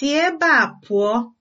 si ebe a pụọ!